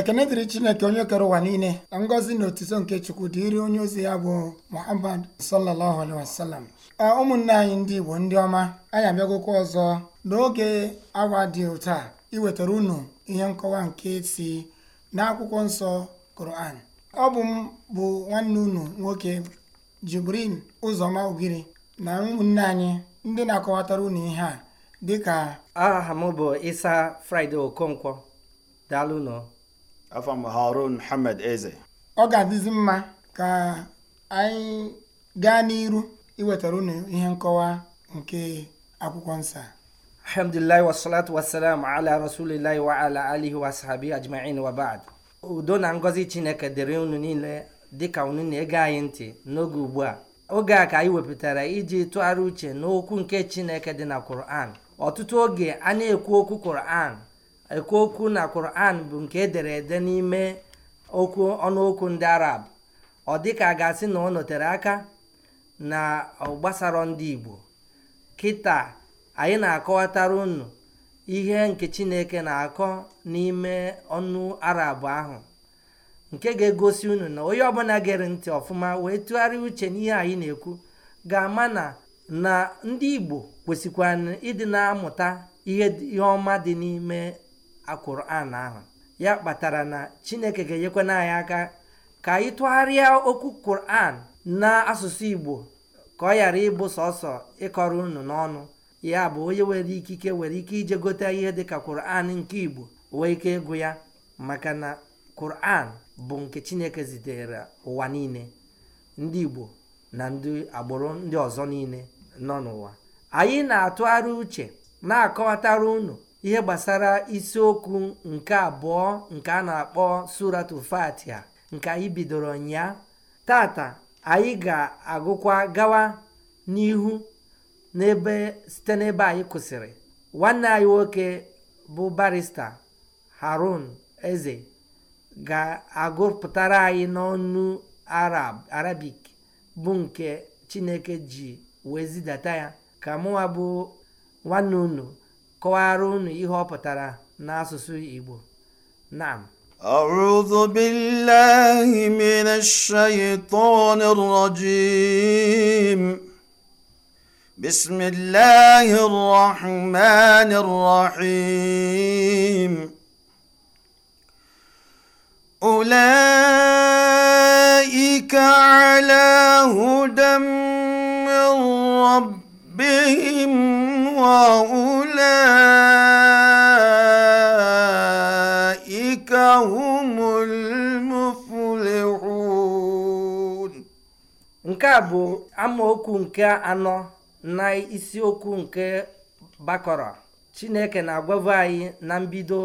ekene dịrị chineke onye kere ụwa niile na ngọzi na otuto nke chukwu dịrị onye ozi ya bụ muhammad sallallahu alaihi ụmụnne anyị ndị igbo ndị ọma anyị abịagokwa ọzọ n'oge awa dị otu a iwetara unu ihe nkọwa nke si n'akwụkwọ nsọ koran ọ bụ m bụ nwanne unu nwoke jibrin ụzọma ugiri na ụmụnne anyị ndị na-akọwatara unu ihe a dịka aha m bụ isa fraịde okonkwo daalụ nọ afọ m harun muhammad eze ọ ga-adịzi mma ka anyị gaa n'iru iwetara unu ihe nkọwa nke akwụkwọ nsọ alhamdulillah wasalatu wasalam ala rasulillahi wa ala alihi wa sahabi ajma'in wa ba'd udo na ngọzi chineke dịrị unu niile dịka unu na-ege anyị ntị n'oge ugbu a oge a ka anyị wepụtara iji tụgharị uche n'okwu nke chineke dị na Kur'an, ọtụtụ oge a na-ekwu okwu Kur'an. okwu na Quran bụ nke edere ede n'ime okwu ọnụokwu ndị Arab ọ dịka a ga-asị na ọ nọtere aka na gbasara ndị Igbo kịta anyị na-akọwatara unu ihe nke Chineke na-akọ n'ime ọnụ Arab ahụ nke ga-egosi unu na onye ọbụla gere ntị ọfụma wee tụgharịa uche n'ihe anyị na-ekwu ga-ama na na ndị Igbo kwesịkwa ịdị na-amụta ihe ọma dị n'ime akwụran ahụ ya kpatara na chineke ga-enyekwana anyị aka ka anyị tụgharịa okwu kuran n'asụsụ igbo ka ọ ghara ịbụ sọsọ ịkọrọ unu n'ọnụ ya bụ onye nwere ikike nwere ike ije gote ihe dịka kuran nke igbo wee ike ịgụ ya maka na kuran bụ nke chineke zitere ụwa niile ndị igbo na ndị agbụrụ ndị ọzọ niile nọ n'ụwa anyị na-atụgharị uche na-akọwatara unu ihe gbasara isiokwu nke abụọ nke a na-akpọ suratu ya nke anyị bidoro ụnyaa tata anyị ga-agụkwa gawa n'ihu n'ebe site n'ebe anyị kwụsịrị nwanne anyị nwoke bụ barista harun eze ga-agụpụtara anyị n'ọnụ arab arabik bụ nke chineke ji wee zidata ya ka mụnwa bụ nwanne unu kọwara unu ihe ọ pụtara n'asụsụ Igbo naam أعوذ بالله من الشيطان الرجيم بسم الله الرحمن الرحيم أولئك على هدى من ربهم وأولئك هم المفلحون nke a bụ amaokwu nke anọ na isiokwu nke bakọrọ chineke na-agwabụ anyị na mbido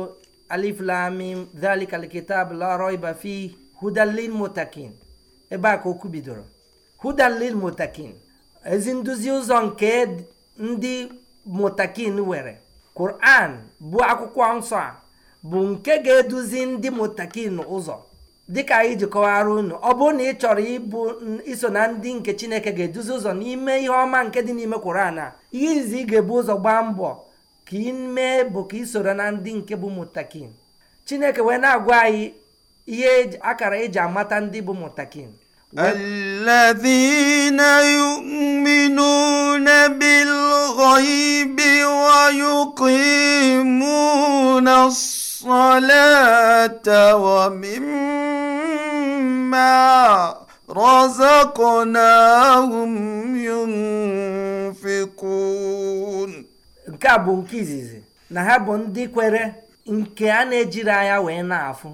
alif lamim dhalika alkitab la raiba fi hudalil mutakin ebe a ka okwu bidoro hudalil mutakin ezi nduzi ụzọ nke ndị mutakin were Quran bụ akwụkwọ nsọ a bụ nke ga-eduzi ndị mutakin ụzọ dịka anyị ji kọwara unu ọ bụrụ na ị chọrọ ịbụ iso na ndị nke Chineke ga-eduzi ụzọ n'ime ihe ọma nke dị n'ime Quran a ihe izi ị ga-ebu ụzọ gbaa mbọ ka ime mee bụ ka na ndị nke bụ mutakin Chineke wee na-agwa anyị ihe e akara eji amata ndị bụ mutakin الذين يؤمنون بالغيب ويقيمون الصلاة ومما رزقناهم ينفقون nke a bụ nke izizi na ha bụ ndị kwere nke a na-ejiri anya wee na-afụ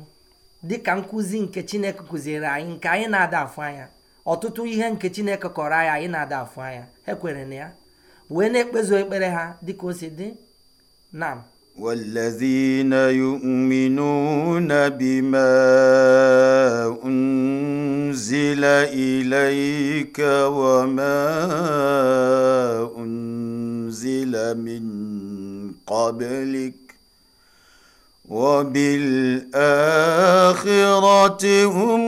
dịka nkụzi nke chineke kụziere anyị nke anyị na-ada afụ anya ọtụtụ ihe nke chineke kọrọ anyị anyị na-ada afụ anya ha na ya wee na-ekpezu ekpere ha dịka o si dị nam والذين يؤمنون بما أنزل إليك وما أنزل من قبلك وبالآخرة هم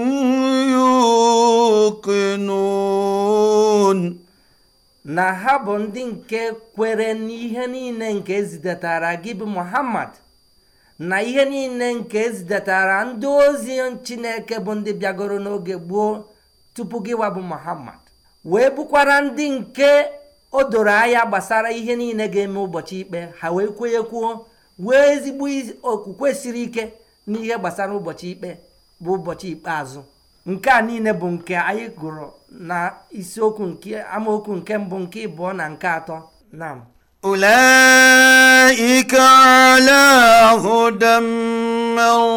يوقنون na ha bụ ndị nke kwere n'ihe niile nke ezidatara gị bụ muhammad na ihe niile nke ezidatara ndị ozi chineke bụ ndị bịagoro n'oge gboo tupu gị wa bụ muhammad wee bụkwara ndị nke o doro anya gbasara ihe niile ga-eme ụbọchị ikpe ha wee kwenyekwuo wee ezigbo okwukwe siri ike n'ihe gbasara ụbọchị ikpe bụ ụbọchị ikpeazụ nke a niile bụ nke anyị gụrụ na isiokwu nke amaokwu nke mbụ nke ịbụọ na nke atọ na ụlọ على هدى من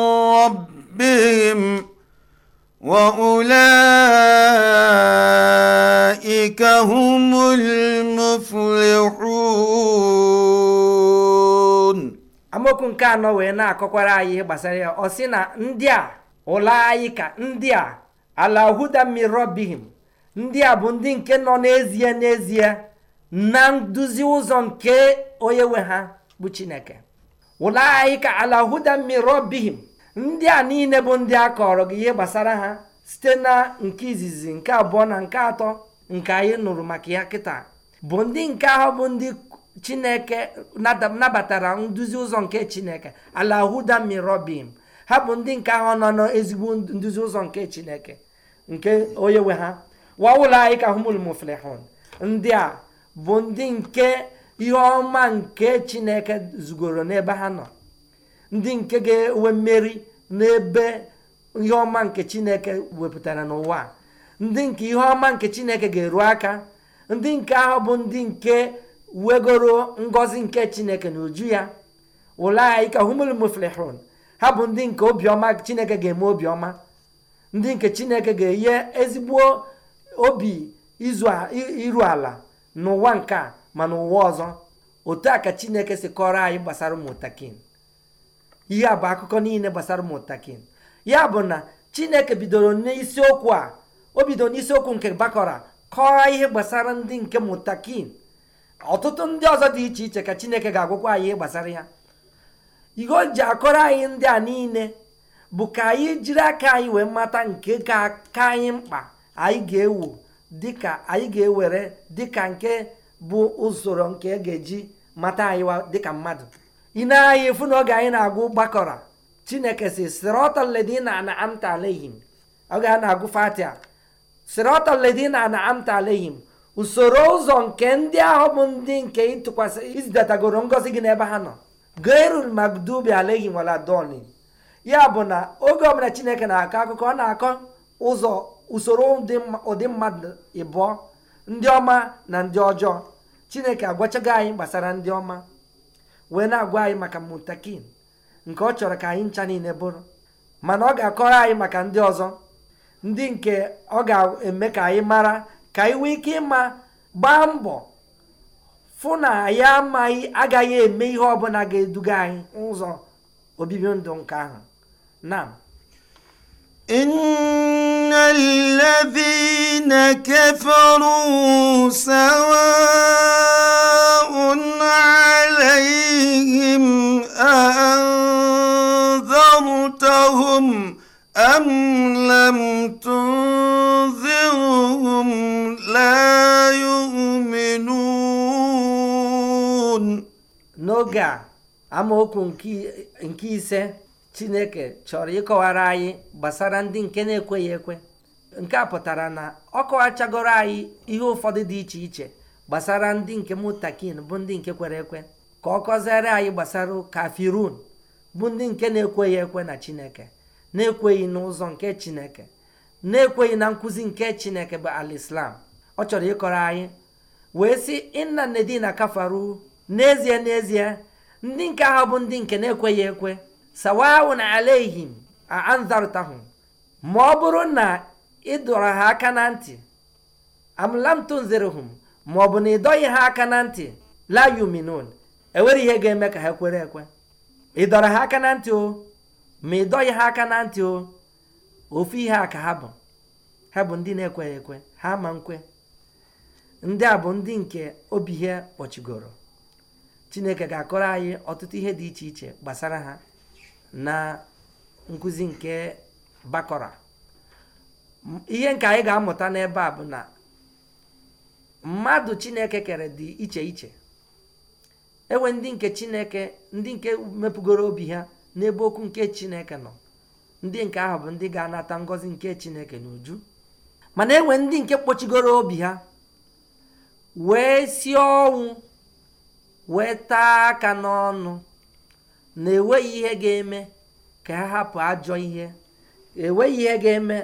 amaokwu nke anọ wee na-akọkwara anyị ihe gbasara ya ọ sị na ndị a ụlọ anyị ka ndị a ala huda mirobihim ndị a bụ ndị nke nọ n'ezie n'ezie na nduzi ụzọ nke onye nwe ha bụ chineke ụlọ anyị ka ala huda mirobihim ndị a niile bụ ndị a kọrọ gị ihe gbasara ha site na nke izizi nke abụọ na nke atọ nke anyị nụrụ maka ya kịta bụ ndị nke ahụ bụ ndị chineke nabatara nduzi ụzọ nke chineke ala huda mirobim ha bụ ndị nke ahụ nọ n'ezigbo nduzi ụzọ nke chineke nke onye nwe ha wa anyị ka humul muflihun ndị a bụ ndị nke ihe ọma nke chineke zugoro n'ebe ha nọ ndị nke ga-enwe mmeri n'ebe ihe ọma nke chineke wepụtara n'ụwa ndị nke ihe ọma nke chineke ga-eru aka ndị nke ahụ bụ ndị nke wegoro ngozi nke chineke na uju ya ulaika humul muflihun ha bụ ndị nke obiọma chineke ga-eme obiọma ndị nke chineke ga-enye ezigbo obi iru ala n'ụwa nke a ma n'ụwa ọzọ otu a ka chineke si kọrọ anyị gbasara ụmụntakin ihe a bụ akụkọ niile gbasara ụmụntakin ya bụ na chineke bidoro n'isiokwu a o bidoro n'isiokwu nke bakọra kọọ ihe gbasara ndị nke mụtakin ọtụtụ ndị ọzọ dị iche iche ka chineke ga-agwụkwa anyị gbasara ya ihe o ji akọrọ anyị ndị a niile bụ ka anyị jiri aka anyị wee mata nke ka aka anyị mkpa anyị ga-ewu dịka anyị ga-ewere dịka nke bụ usoro nke e ga-eji mata anyị dịka mmadụ ị na-anya efu na oge anyị na-agụ gbakọrọ chineke si ledina na amta alehim oge a na-agụ fatia sirọtọledina na amta alehim usoro ụzọ nke ndị ahụ bụ ndị nke ịtụkwasị izidatagoro ngọzi gị n'ebe ha nọ gairul magdubi aleghi waladoni ya bụ na oge ọbụla chineke na-akọ akụkọ ọ na-akọ ụzọ usoro ụdị mmadụ ịbụ ndị ọma na ndị ọjọọ chineke agwachago anyị gbasara ndị ọma wee na-agwa anyị maka mutakin nke ọ chọrọ ka anyị ncha niile bụrụ mana ọ ga-akọrọ anyị maka ndị ọzọ ndị nke ọ ga-eme ka anyị mara ka ị nwee ike ịma gbaa mbọ fụ na ya amaghị agaghị eme ihe ọbụla ga-eduga anyị ụzọ obibi ndụ nke ahụ na إن الذين كفروا سواء عليهم أأنذرتهم أم لم تنذرهم لا يؤمنون n'oge a amaokwu nke ise Chineke chọrọ ịkọwara anyị gbasara ndị nke na-ekweghị ekwe nke a pụtara na ọ kọwachagoro anyị ihe ụfọdụ dị iche iche gbasara ndị nke mụtakin bụ ndị nke kwere ekwe ka ọ kọziere anyị gbasara kafirun bụ ndị nke na-ekweghị ekwe na Chineke na-ekweghị n'ụzọ nke chineke na-ekweghị na nkụzi nke chineke bụ alislam ọ chọrọ ịkọrọ anyị wee sị inna nedina kafaru n'ezie n'ezie ndị nke ahụ bụ ndị nke na-ekweghị ekwe na alehim anzarụtahụ ma ọ bụrụ na ị dọrọ ha aka na ntị amlamtunzirhum ma ọ bụ na ị dọghị ha aka na ntị la yuminun enwere ihe ga-eme ka ha kwere ekwe ị dọrọ ha aka na ntị o ma ị dọghị ha aka na ntị o ofu ihe a ka ha bụ ha bụ ndị na-ekweghị ekwe ha ma nkwe ndị a bụ ndị nke obi ihe kpọchigoro chineke ga-akọrọ anyị ọtụtụ ihe dị iche iche gbasara ha na nkuzi nke bakọra ihe nke anyị ga-amụta n'ebe a bụ na mmadụ chineke kere dị iche iche enwe ndị nke chineke ndị nke mepụgoro obi ha n'ebe okwu nke chineke nọ ndị nke ahụ bụ ndị ga-anata ngọzi nke chineke n'uju mana enwe ndị nke kpochigoro obi ha wee si ọnwụ wee taa aka n'ọnụ na enweghị ihe ga-eme ka ha hapụ ajọ ihe enweghị ihe ga-eme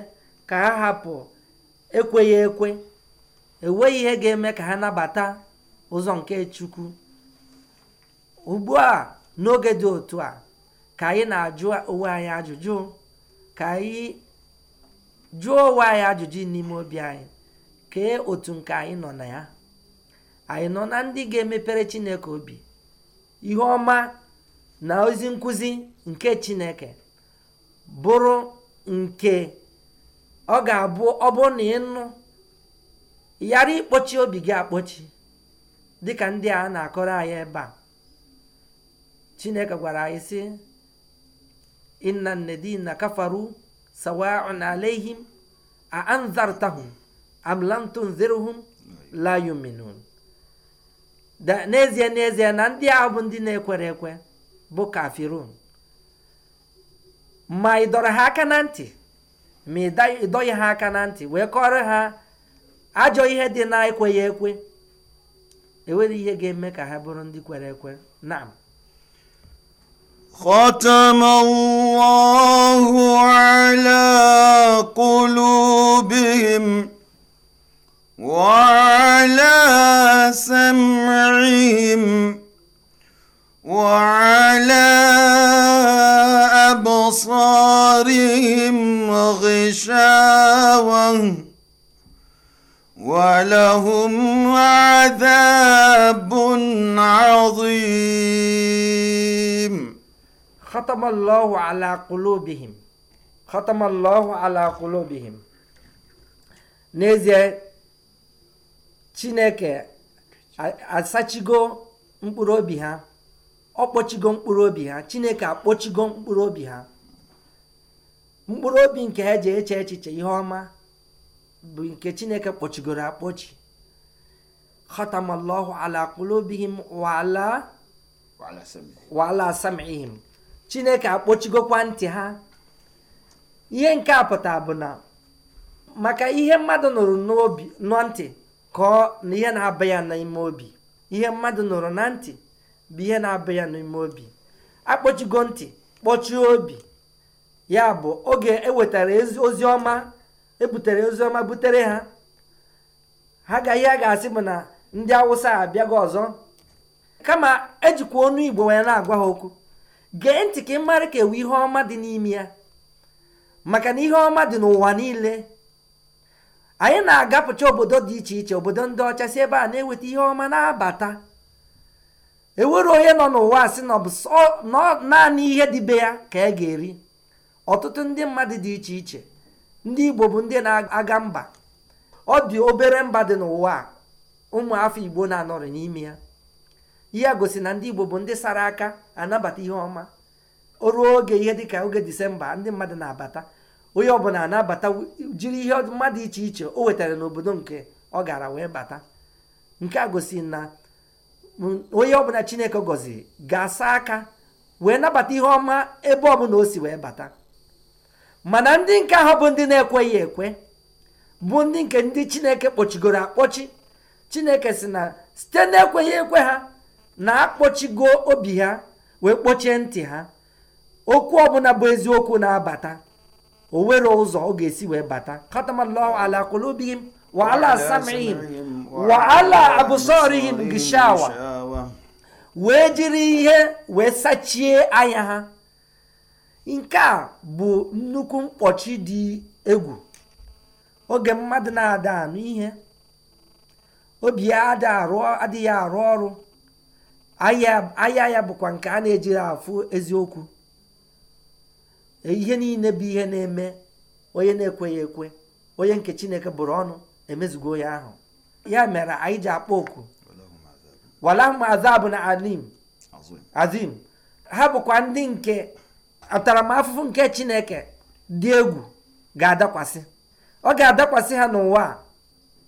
ka ha hapụ ekweghị ekwe enweghị ihe ga-eme ka ha nabata ụzọ nke chukwu ugbu a n'oge dị otu a ka anyị na-ajụ onwe anyị ajụjụ ka anyị jụọ onwe anyị ajụjụ n'ime obi anyị kee otu nke anyị nọ na ya anyị nọ na ndị ga-emepere Chineke obi ihe ọma na ozi nkụzi nke Chineke bụrụ nke ọ ga-abụ ọ bụrụ na ịnụ ghara ịkpọchi obi gị akpọchi dịka ndị a na-akọrọ anyị ebe a Chineke gwara anyị sị inna alladhina kafaru sawaun alayhim a anzartahum am lam tunzirhum la yuminun da n'ezie n'ezie na ndị ahụ bụ ndị na-ekwere ekwe bụ kafirun ma ị dọrọ ha aka na ntị ma ị dọghị ha aka na ntị wee kọrọ ha ajọ ihe dị na ekweghị ekwe enwere ihe ga-eme ka ha bụrụ ndị kwere ekwe naam ghọtụmnwụwaọhụlekụlu bighịm lesimịrịghịm weeleabọsorịghịm mahishawaụ welehụm debụ naọzụi khatamallahu ala qulubihim khatamallahu ala qulubihim n'ezie chineke asachigo mkpụrụ obi ha ọ kpọchigo mkpụrụ obi ha chineke akpọchigo mkpụrụ obi ha mkpụrụ obi nke ha ji eche echiche ihe ọma bụ nke chineke kpọchigoro akpọchi khatamallahu ala qulubihim wa ala wa ala sam'ihim chineke akpọchigokwa ntị ha ihe nke a pụta bụ na maka ihe mmadụ nụrụ n'obi nọ ntị kọọ na ihe na-aba ya n'ime obi ihe mmadụ nụrụ na ntị bụ ihe na-aba ya n'ime obi akpọchigo ntị kpọchie obi ya bụ oge ewetara ozi ọma ebutere ozi ọma butere ha ha ga ihe a ga-asị bụ na ndị awụsa abịago ọzọ kama ejikwa onu igbo wee na-agwa ha okwu gee ntị ka ị mara ka ewu ihe ọma dị n'ime ya maka na ihe ọma dị n'ụwa niile anyị na-agapụcha obodo dị iche iche obodo ndị ọcha si ebe a na-eweta ihe ọma na-abata ewere onye nọ n'ụwa si na naanị ihe dị be ya ka a e ga-eri ọtụtụ ndị mmadụ dị iche iche ndị igbo bụ ndị na-aga mba ọ dị obere mba dị n'ụwa ụmụ afọ igbo na-anọrị n'ime ya ihe a gosi na ndị Igbo bụ ndị sara aka anabata ihe ọma o ruo oge ihe dịka oge disemba ndị mmadụ na-abata onye ọbụla anabata jiri ihe mmadụ iche iche o wetara n'obodo nke ọ gara wee bata nke a gosi na onye ọbụla Chineke gọziri ga-asa aka wee nabata ihe ọma ebe ọbụla o si wee bata mana ndị nke ahụ bụ ndị na-ekweghị ekwe bụ ndị nke ndị Chineke kpọchigoro akpọchi Chineke si na site na-ekweghị ekwe ha na akpọchigo obi ha wee kpọchie ntị ha okwu ọbụla bụ eziokwu na-abata o nwere ụzọ ọ ga-esi wee bata katamallahu ala wa ala samihim wa ala abụsorihim gishawa wee jiri ihe wee sachie anya ha nke a bụ nnukwu mkpọchi dị egwu oge mmadụ na-ada anụ ihe obi ya adịghị arụ ọrụ ahịa ya bụkwa nke a na-ejiri afụ eziokwu e, ihe niile bụ ihe na-eme onye na-ekweghị ekwe onye nke chineke bụrụ ọnụ emezugo ya ahụ ya mere anyị ji akpọ oku walahum azabụ na alim azim ha bụkwa ndị nke ataramahụhụ nke chineke dị egwu ga-adakwasị ọ ga-adakwasị ha n'ụwa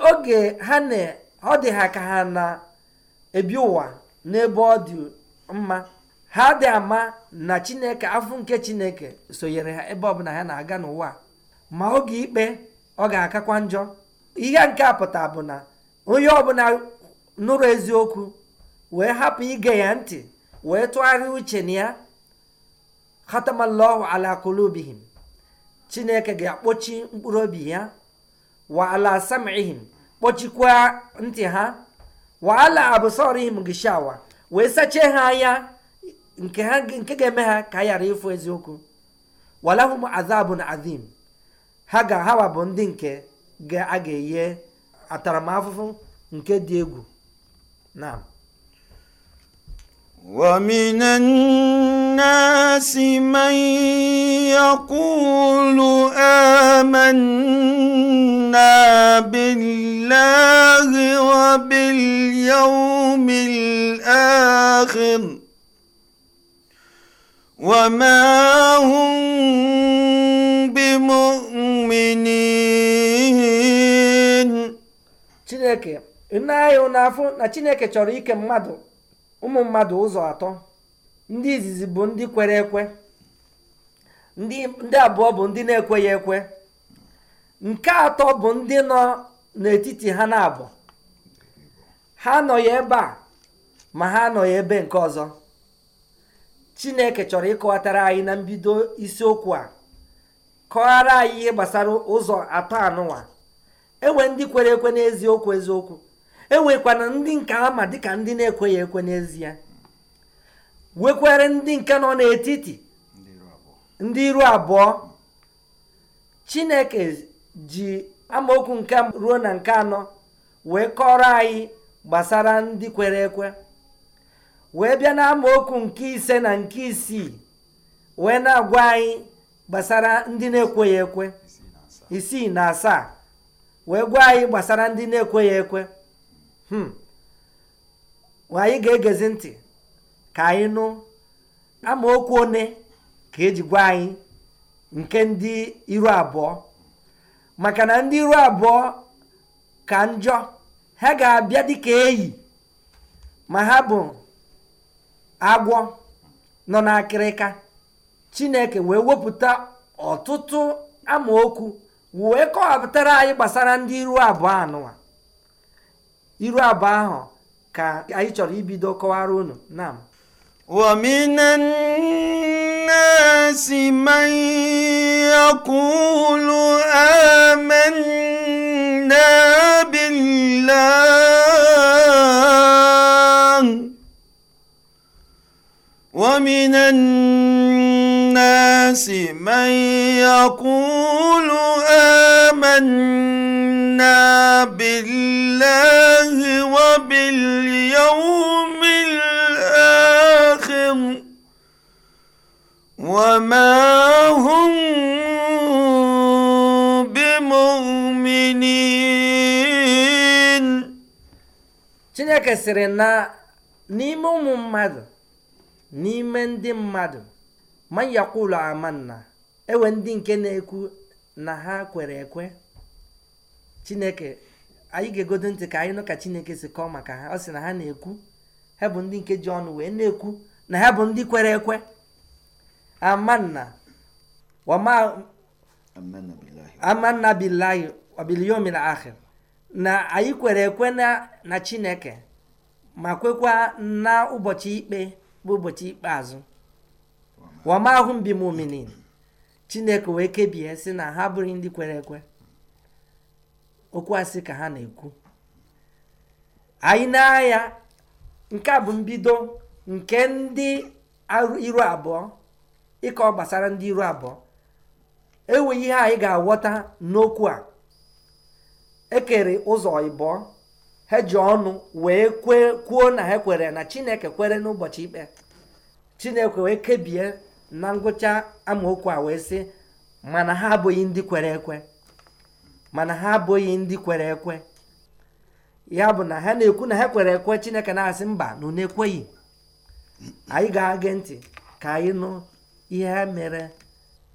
oge ha na ọ dị ha ka ha na-ebi ụwa n'ebe ọ dị mma ha dị ama na chineke afọ nke chineke sonyere ha ebe ọbụla ha na-aga n'ụwa ma oge ikpe ọ ga-akakwa njọ ihe nke a pụta bụ na onye ọbụla nụrụ eziokwu wee hapụ ige ya ntị wee tụgharịa uche na ya khatamallahu ala kulubihim chineke ga-akpọchi mkpụrụ obi ya wa ala sam'ihim kpọchikwaa ntị ha waala abụsọrihim gishawa wee sachie ha anya nke ga-eme ha ka a ghara ịfụ eziokwu walahum azabun azim ha ga hawa bụ ndị nke a ga-enye ataramahụhụ nke dị egwu na ومن الناس من يقول آمنا بالله وباليوم الآخر وما هم بمؤمنين Chineke, nne anyị na-afụ na Chineke chọrọ ike mmadụ ụmụ mmadụ ụzọ atọ ndị izizi bụ ndị kwere ekwe ndị abụọ bụ ndị na-ekweghị ekwe nke atọ bụ ndị nọ n'etiti ha na-abụ ha anọghị ebe a ma ha anọghị ebe nke ọzọ chineke chọrọ ịkọwatara anyị na mbido isiokwu a kọghara anyị ihe gbasara ụzọ atọ anụnwa enwe ndị kwere ekwe n'eziokwu eziokwu enwekwana ndị nke ama dịka ndị na-ekweghị ekwe n'ezie wekwere ndị nke nọ n'etiti ndị iru abụọ chineke ji amaokwu nke ruo na nke anọ wee kọrọ anyị gbasara ndị kwere ekwe wee bịa na amaokwu nke ise na nke isii wee na anyị gbasara ndị na-ekweghị ekwe isii na asaa wee gwa anyị gbasara ndị na-ekweghị ekwe Hmm. anyị ga-egezi ntị ka anyị nụ amaokwu one ka eji gwa anyị nke ndị iru abụọ maka na ndị iru abụọ ka njọ ha ga-abịa dịka eyi ma ha bụ agwọ nọ n'akịrịka chineke wee wepụta ọtụtụ amaokwu wee kọwapụtara anyị gbasara ndị iru abụọ anụwa iru abụọ ahụ anyị chọrọ ibido kọwara unu ilileomisi meeokụ ụlụee آمنا بالله وباليوم الآخر وما هم بمؤمنين Chineke sịrị na n'ime ụmụ mmadụ n'ime ndị mmadụ ma yakwulu amanna ewe ndị nke na-ekwu na ha kwere ekwe chineke anyị ga-egodo ntị ka anyị nụ ka chineke si kọọ maka ha ọ sị na ha na-ekwu ha bụ ndị nke ji ọnụ wee na-ekwu na ha bụ ndị kwere ekwe amanna wama amanna billahi wabiliyomil akhir na anyị kwere ekwe na na chineke ma kwekwa na ụbọchị ikpe bụ ụbọchị ikpeazụ wama mbi muminin chineke wee kebie sị na ha bụrụ ndị kwere ekwe okwu asị ka ha na-ekwu anyị n'ahịa nke a bụ mbido nke ndị iru abụọ ịkọ gbasara ndị iru abụọ enweghị ihe anyị ga-aghọta n'okwu a ekere ụzọ ịbụọ ha ji ọnụ wee kwuo na ha kwere na chineke kwere n'ụbọchị ikpe chineke wee kebie na ngwụcha amaokwu a wee sị mana ha abụghị ndị kwere ekwe mana ha abụghị ndị kwere ekwe ya bụ na ha na-ekwu na ha kwere ekwe chineke na-asị mba na na ekweghị anyị ga-agị ntị ka anyị nụ ihe ha mere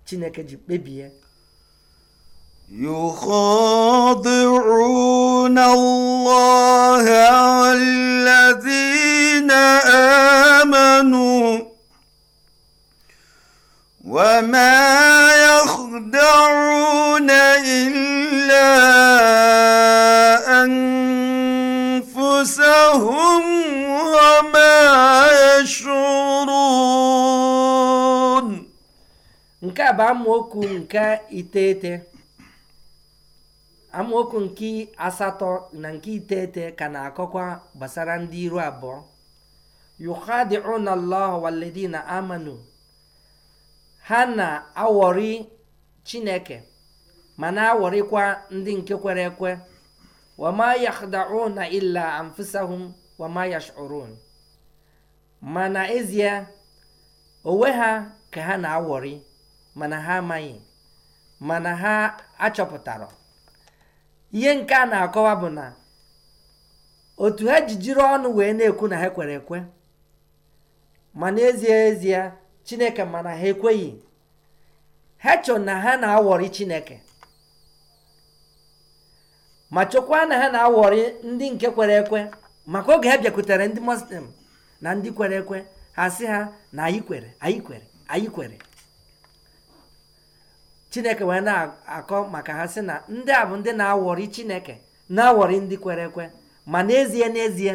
chineke ji kpebie يخادعون الله الذين آمنوا وما يخدعون إلا أنفسهم وما يشعرون nke a bụ amaokwu nke iteghete amaokwu nke asatọ na nke iteghete ka na-akọkwa gbasara ndị iru abụọ yukhadi'una Allah walladina amanu ha na-awọrị chineke ma na-awọrịkwa ndị nke kwere ekwe wama na illa anfusahum wama yash'urun ma na ezie onwe ha ka ha na-awọrị mana ha amaghị mana ha achọpụtara ihe nke a na-akọwa bụ na otu ha ji jiri ọnụ wee na-ekwu na ha kwere ekwe ma n'ezie ezie chineke mana ha ekweghị ha chọ na ha na-awọrị chineke ma chọkwa na ha na-awọrị ndị nke kwere ekwe maka oge ha bịakwutere ndị muslim na ndị kwere ekwe ha sị ha na anyị kwere anyị kwere anyị kwere chineke wee na-akọ maka ha sị na ndị a bụ ndị na-awọrị chineke na-awọrị ndị kwere ekwe ma n'ezie n'ezie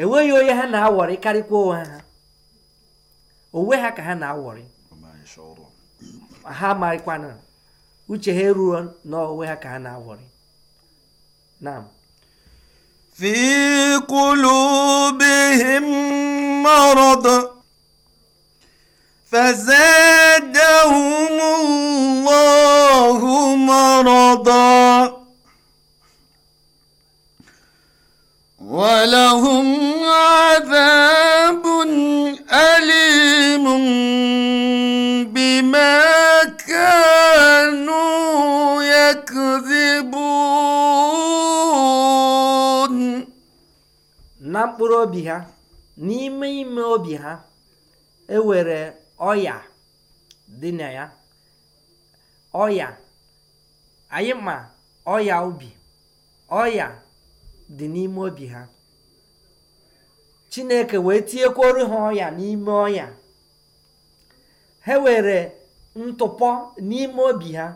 enweghị onye ha na-awọrị karịkwa onwe ha onwe ha ka ha na-awọrị ha marịkwana uche ha eruo n'onwe ha ka ha na-awọrị naam fi qulubihim marad فزادهم الله مرضا ولهم عذاب أليم عليم بما كانوا يكذبون na mkpụrụ obi ha n'ime ime obi ha ewere ọya dị na ya ọya anyị ma ọya ubi ọya dị n'ime obi ha chineke wee tinyekwuru ha ọya n'ime ọya ha were ntụpọ n'ime obi ha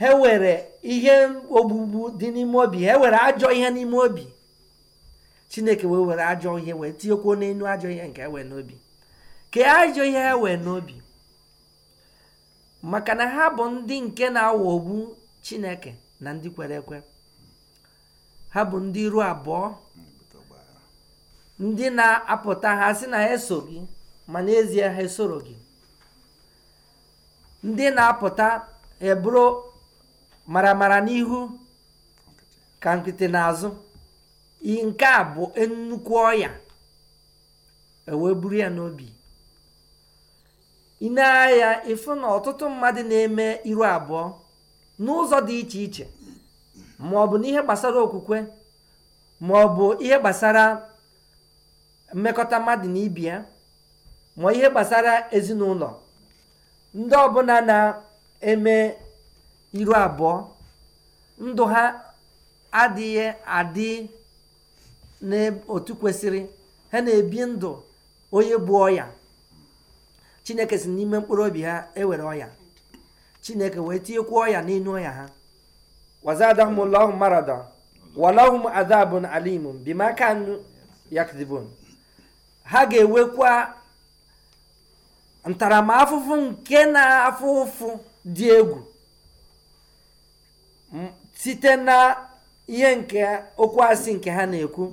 ha were ihe ogbugbu dị n'ime obi ha were ajọ ihe n'ime obi chineke wee were ajọ ihe wee tinyekwuo n'elu ajọ ihe nke ewe n'obi ka ajọ ihe ha wee n'obi maka na ha bụ ndị nke na-aghọgbu chineke na ndị kwere ekwe ha bụ ndị ruo abụọ ndị na-apụta ha si na ha eso gị ma n'ezie ha esoro gị ndị na-apụta eburu maramara n'ihu ka nkịtị n'azụ nke a bụ nnukwu ọya eweburu ya n'obi ine ịfụ na ọtụtụ mmadụ na-eme iru abụọ n'ụzọ dị iche iche ma ọ bụ n'ihe gbasara okwukwe ma ọ bụ ihe gbasara mmekọta mmadụ na ibi ya ma ihe gbasara ezinụlọ ndị ọbụla na-eme iru abụọ ndụ ha adịghị adị n'otu kwesịrị ha na-ebi ndụ onye bụ ọya chineke si n'ime mkpụrụ obi ha ewere ọya chineke wee ọya n'inu ọya ha wazadahum lahum marada walahum adabun alimun bima kanu yakdibun ha ga enwekwa ntaramahụhụ nke na-afụ ụfụ dị egwu site na ihe nke okwu asị nke ha na-ekwu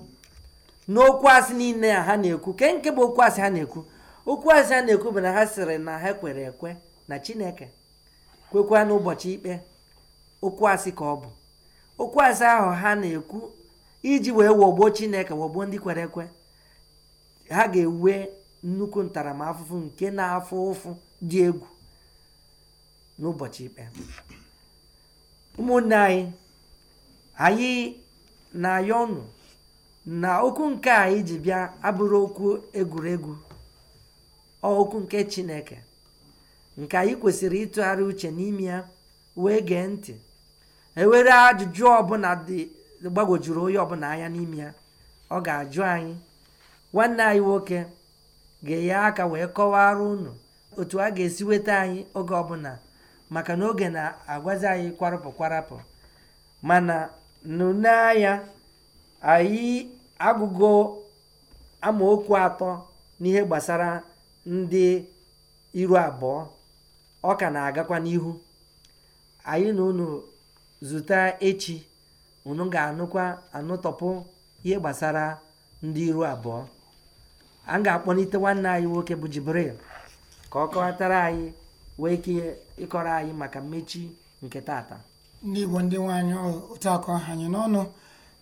n'okwu asị niile ha na-ekwu ke nke bụ okwu asị ha na-ekwu okwu asị ha na-ekwu bụ na ha sịrị na ha kwere ekwe na chineke kwekwa n'ụbọchị ikpe okwu asị ka ọ bụ okwu asị ahụ ha na-ekwu iji wee wọgbuo chineke wọgbuo ndị kwere ekwe ha ga-ewe nnukwu ntaramahụhụ nke na-afụ ụfụ dị egwu n'ụbọchị ikpe ụmụnne anyị anyị na-ayọ ọnụ na okwu nke anyị ji bịa abụrụ okwu egwuregwu okwu nke chineke nke anyị kwesịrị ịtụgharị uche n'ime ya wee gee ntị ewere ajụjụ ọbụla dị gbagwojuru onye ọbụla anya n'ime ya ọ ga-ajụ anyị nwanne anyị nwoke ga-enye aka wee kọwara unu otu a ga-esi weta anyị oge ọbụla maka na oge na-agwazi anyị kwarapụ kwarapụ mana nụnanya anyị agụgo amaokwu atọ n'ihe gbasara ndị iru abụọ ọ ka na-agakwa n'ihu anyị na unu zụta echi unu ga-anụkwa anụtọpụ ihe gbasara ndị iru abụọ a ga-akpọlite nwanne anyị nwoke bụ Jibril ka ọ kọwatara anyị wee ike ịkọrọ anyị maka mmechi nke taata ndị Igbo ndị nwaanyị otu akọ anyị n'ọnụ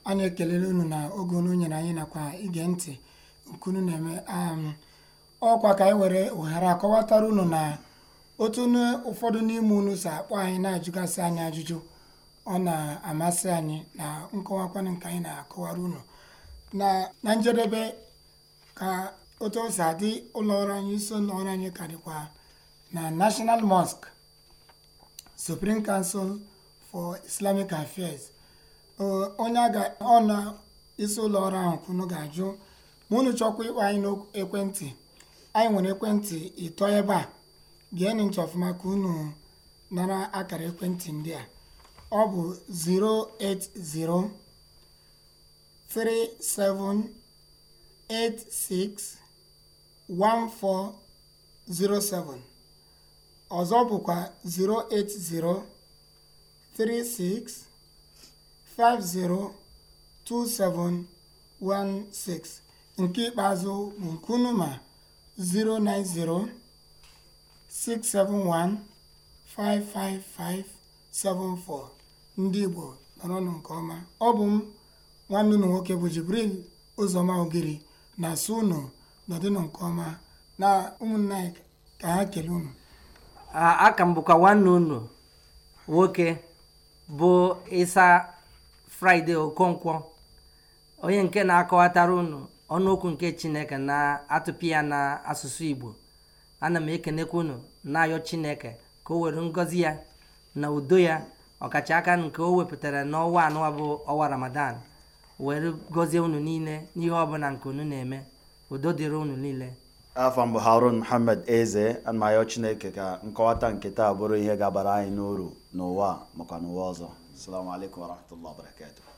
anyị ekelele unu na oge unu nyere anyị nakwa ige ntị nkunu na-eme um, ọkwa ka anyị e were ohere akọwatara unu na otu ụfọdụ n'ime unu si akpọ anyị na-ajụgasị anyị ajụjụ ọ na-amasị anyị na nkọwakwanụ nke anyị na-akọwara unu na njedebe ka otu o si adị ụlọọrụ anyị isi ụlọọrụ anyị karịkwa na national mosque supreme council for islamic affairs onye ọ isi ụlọọrụ ahụ kwunu ga-ajụ ma unu chọkwa ịkpọ anyị n'ekwentị anyị nwere ekwentị ịtọ ebe a geenụ nchọ ọfụma ka unu nara akara ekwentị ndị a ọ bụ 080 37 080361407 ọzọ bụkwa 08036502716 nke ikpeazụ bụ nkunuma 09067155574 ndị Igbo nọrọnụ nke ọma ọ bụ m nwanne unu nwoke bụ Jibril Ụzọma Ogiri na asụ ụnụ nọdịnụ nke ọma na ụmụnna anyị ka ha kelee ụnụ aka m bụkwa nwanne nwoke bụ ịsa fraịde okonkwo onye nke na-akọwatara ụnụ ọnụokwu nke chineke na-atụpị ya na asụsụ igbo ana m ekenekwa ụnụ na-ayọ chineke ka o were ngọzi ya na udo ya ọkacha nke o wepụtara n'ọnwa anọ bụ ọnwa ramadan were gọzie unu niile n'ihe ọbụla nke unu na-eme udo dịrị unu niile afọ mbụ harun muhammad eze amayo chineke ka nkọwata nke taa bụrụ ihe gabara anyị n'uru n'ụwa makwa n'ụwa ọzọ assalamu alaikum warahmatullahi